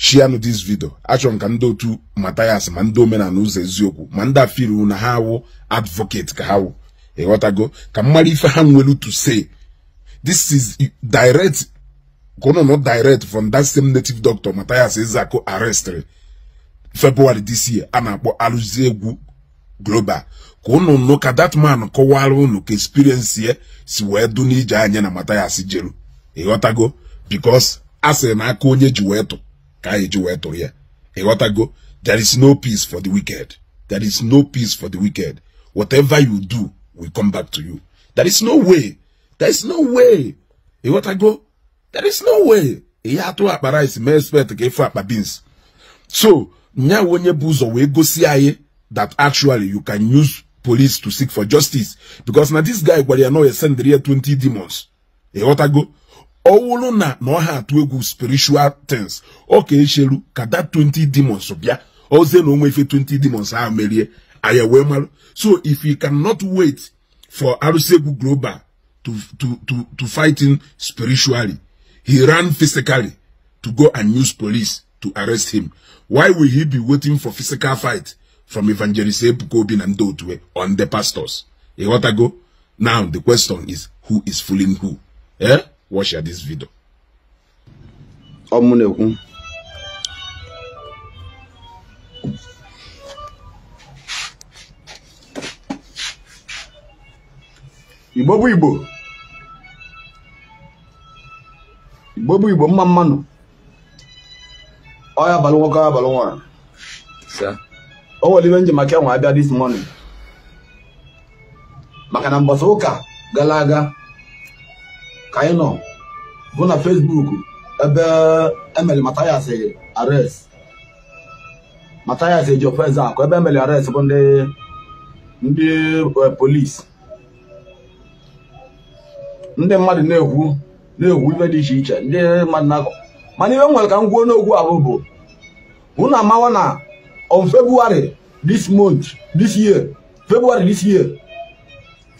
shianụ this vidio achọrọ ka ndị otu matayas ma ndị omenala ụzọ eziokwu ma ndị afiru na ha wụ advocate ka ha wụ ịghọtago ka mmadụ ife ha nwere to say this is direct kono no direct from that same native doctor matayas ezako arrestri february this year a na-akpọ arụzi egwu global ka unu nụ ka that man kọwara unu ka experience ya si wee du n'ije anya na matayas jeru ịghọtago because a na aka onye ji wee tụ ka anyị e ji wee tụrụ ya ịghọtago there is no peace for the wicked there is no peace for the wicked whatever you do will come back to you there is no way there is no way ịghọtago there is no way ihe atụ akpa rice mee expect ka ịfụ akpa beans so nya onye bụ ụzọ wee gosi anyị that actually you can use police to seek for justice because na this guy gwara ya na ya ya 20 demons ịghọtago ọwụrụ na na ọ ha to egwu spiritual things Okay, Shelu, echeru that 20 demons bịa ozie no onwe 20 demons ahụ merie anyị we so if you cannot wait for arụsegwu global to, to, to, to fight him spiritually he ran physically to go and use police to arrest him why will he be waiting for physical fight from evangelist ebuka and na on the pastors go now the question is who is fooling who eh? watch this video ọ mụ na-ekwu igbo bụ igbo igbo bụ igbo mma mmanụ ọya abalị nwoke ọya abalị nwaanyị o nwere iwe njem maka enwe abịa this morning maka na mbọsị ụka gara aga ka anyị nọ bụ na Facebook ebe emeli Mathias arrest Mathias eji ofense akụ ebe emeli arrest bụ ndị ndị e, polisi ndị mmadụ na-ekwu na-ekwu ife dị iche iche ndị mmadụ na-akọ mana ihe nwere ka m gwuo n'okwu ahụ bụ hụ na amawa na on February this month this year February this year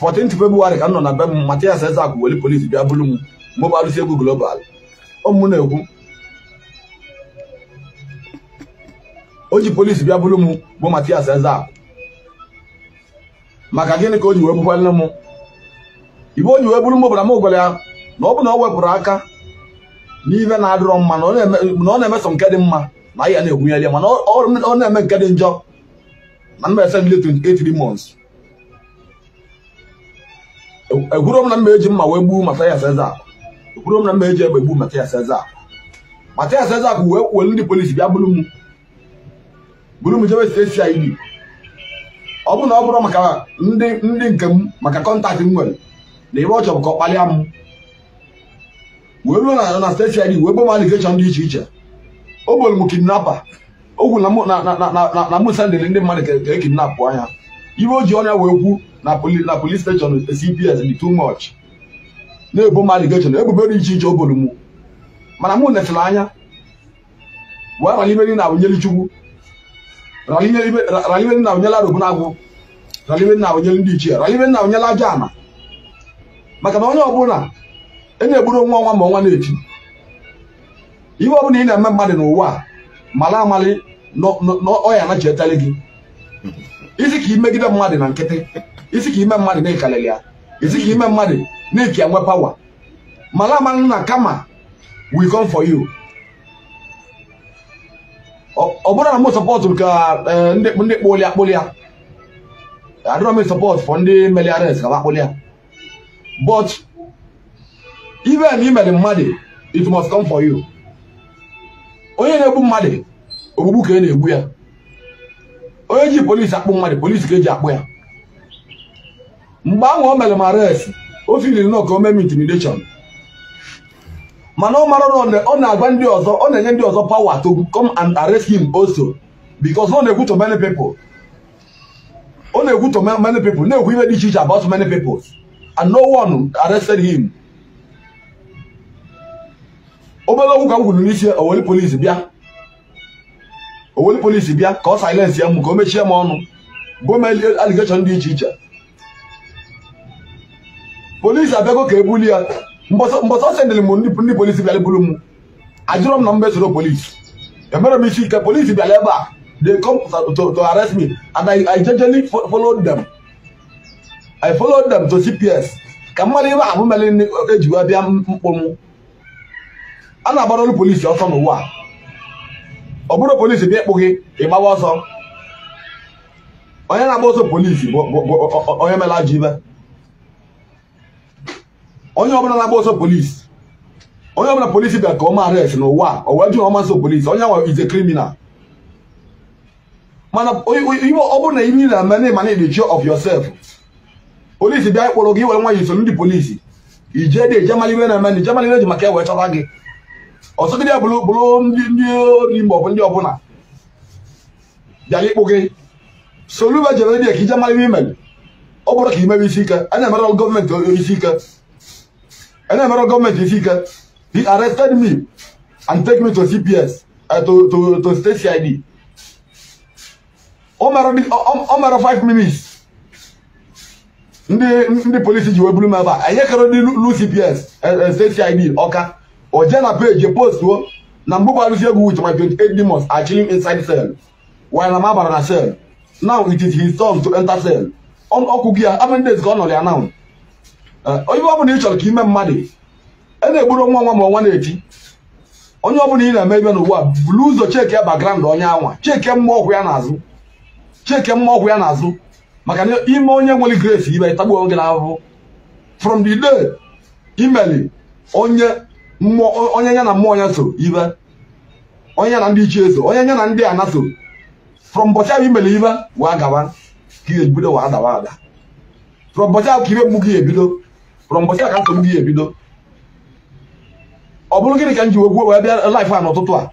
14 Febụwarị ka m nọ na be m Mathias Ezeaku weli polisi bịa bụrụ m mgbe egwu global ụmụ na-ekwu o ji polisi bịa bụrụ m bụ Matias Ezeaku maka gịnị ka o ji wee bụkwalụ m ibe o ji wee bụrụ m bara m gwara ya na ọ bụ na ọ wepụrụ aka n'ihe na-adịrọ mma na ọ na-emeso nke dị mma na ya na-egwunyere ya mana ọ na-eme nke dị njọ na mba ese ndị 28 months ekwuro m na mma eji mma wee gbuo Mathias Ezeaku ekwuro m na mma eji egbe gbuo Mathias Ezeaku Mathias Ezeaku wee kwuo ndị polisi bịa buru m buru m jebe CID ọ bụrụ na ọ bụrụ maka ndị ndị nke m maka kọntaktị m nwere na ebe ọ chọrọ ka ọ kpalịa m wee ruo na na steeti ID wee bom alikeshọn dị iche iche o gboro m kidnapa o kwuru na na na na na mụ sendịrị ndị mmadụ ka e kidnapụ anya iwe o ji ọnya wee kwu na police steshọn CPS dị too much na-ebo m allegation ebubo dị iche iche obolu m mana mụ netụrụ anya wee raliberi na awụnyeli chukwu raliberi na awụnyela robunagwụ raliberi na awụnyeli ndị ichie raliberi na awụnyela aja ana maka na onye ọbụla e na-egburu nwa ọnwa ma ọnwa na-eti ihe ọbụla ị na-eme mmadụ n'ụwa a mara amali na ọ ya anachietalị gị isi ka imegide mmadụ na nkịtị isi ka ime mmadụ na ekalili ya isi ka ime mmadụ na-eke enwe pawa mara ama na kama we come for you ọ bụrụ na m sọpọtụ ka eh, ndị kpoli akpụlịa adịrọ m sọpọtụ fọ ndị meliares ka akpụlịa but even imere mmadụ it must come for you onye na-egbu mmadụ ogbugbu ka ị e na-egbu ya onye ji polisi akpụ mmadụ polisi ka eji akpụ ya mgbe ahụ o mere m arrest o filiri nọ ka o mee m intimidation mana ọ mara na ọ na-agwa ndị ọzọ ọ na-enye ndị ọzọ pawa to come and arrest him also because ọ na-ekwu to many people ọ na-ekwu to many na-ekwu ibe dị iche iche about many people and no one arrested him obere okwu ka m kwuru n'isi owere polisi bịa owere polisi bịa ka ọ silence ya mụ ka o mechie m ọnụ gomeli aligeshọn dị iche iche polisi abịago ka ebuli ya mbọsọ sendịrị m ndị polisi bịara buru m ajụrọ m na mbe soro polisi emere m isi ike polisi bịara ebe a they come to, to arrest me and I, I jejely dem them I folo them to CPS ka mmadụ ibe ahụ mere ejiwa bịa mkpụ m a na-agbarolu polisi ọsọ n'ụwa ọ bụrụ polisi bịa ịkpụ gị ịgbawa ọsọ onye na-agba ọsọ polisi bụ onye mela ajọ ibe onye ọbụla na-agba ọsọ polisi onye ọbụla polisi bịa ka ọ ma arrest n'ụwa o wee jụ ọma nso polisi onye nwe is a mana ọ bụrụ na ihe na-eme na ịmana the of yourself polisi bịa ịkpụrụ gị were nwa yi so ndị polisi ije dị ije mara ihe na-eme na ije mara ihe ji maka e wee chọta gị ọtụtụ ndị bụrụ bụrụ ndị ndị ori maọbụ ndị ọbụla bịara ịkpụ gị soluba jere ndị ka ije mara ihe imere ọ bụrụ ka imewe isi ike a na-emere gọọmenti isi ike a na-emere gọọmenti isi ike he arrested me and take me to cps uh, eh, to, to, to state cid ọ mara 5 minutes ndị ndị polisi ji wee buru m ebe a anyị kere ndị lu cps eh, eh, state cid ọka o jee na peji postuo na mgbe gbarụzi egwu with my 28 demons are inside cell while na m abara na cell now it is his turn to enter cell ọkụ gị ya amen days ka ọ ya now onye ọbụla ị chọrọ ka ime mmadụ e na-egburu nwa nwa ma ọnwa na-eti onye ọbụla ị na-eme ebe n'ụwa ụzọ cheke bagrand onye anwa cheke ọgwụ ya n'azụ cheke ọgwụ ya n'azụ maka na onye nwere grace ibe tagbuo oge from the day imeli onye onye ya na mmụọ ya so ibe onye ya na ndị ichie so onye ya na ndị ana so from ụbọchị ahụ imere ibe wee gawa ka ihe ebido wee adawa ada from ụbọchị ahụ ka ibe mgbu gị ebido from ụbọchị ahụ ka nsogbu gị ebido ọ bụrụ gịnị ka m ji wegwuo wee bịa laif a n'ụtụtụ a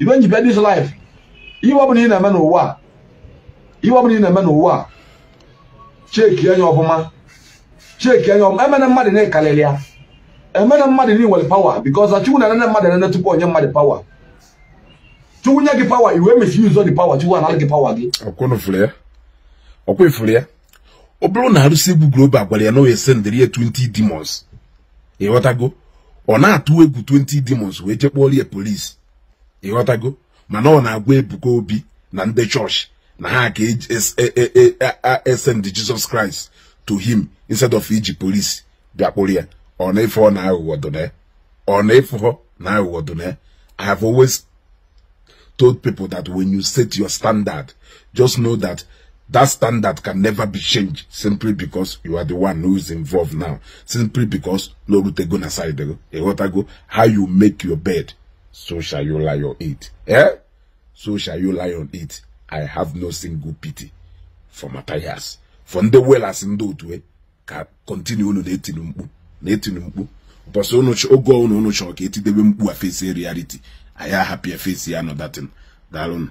ibe nji bịa dis laif ihe ọ bụla ị na-eme n'ụwa a ihe ọ bụla ị na-eme n'ụwa a cheki anya ọfụma cheki anya ọfụma emena mmadụ na-ekalịrị ya emere mmadụ niile nwere pawa because na chukwu na-enene mmadụ enene tupu onye mmadụ pawa chukwu nye gị pawa iwe misuse dị pawa chukwu anara gị pawa gị ọkwa ifuru ya ọ bụrụ na arụsị egwu global gwara ya na oye sendịrị ya 20 demons ịghọtago ọ na-atụ egwu 20 demons wee jekpọrọ ya polisi ịghọtago mana ọ na-agwa Ebuka Obi na ndị chọọchị na ha ga-esend e, e, e, Jizọs Kraịst to him instead of iji polisi bịakpụrụ ya on A4 now Wadone. On A4 now do I have always told people that when you set your standard, just know that that standard can never be changed simply because you are the one who is involved now. Simply because Lorutego Nasaidego, Egotago, how you make your bed, so shall you lie on it. Eh? So shall you lie on it. I have no single pity for Matthias. From the well as in those way, continue on the 18 na-etiri mkpu bọsụ oge ọnụ unu chọrọ ka etidebe mkpu a fesi anyị ahapụ ya fesi ya nọ datin daalụnụ